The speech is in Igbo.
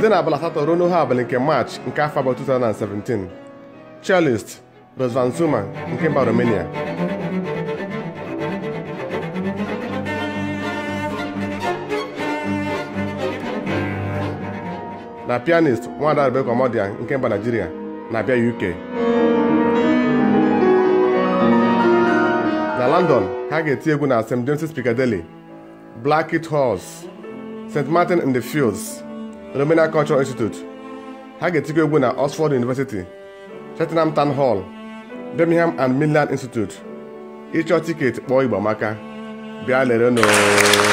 site na abalị asatọ ruo n'ohe abalị nke march nke afọ abụọ 2017 cellist Razvan Zuma nke mba Romania na pianist nwada Rebecca nke mba Nigeria na bia UK na London ha ga-eti egwu na St James's Piccadilly Blackheath Halls St Martin in the Fields Romania Cultural Institute ha ga-etikwa egwu na Oxford University Cheltenham Town Hall Birmingham and Midland Institute ịchọ tiketi kpọọ Igbo maka bịa lere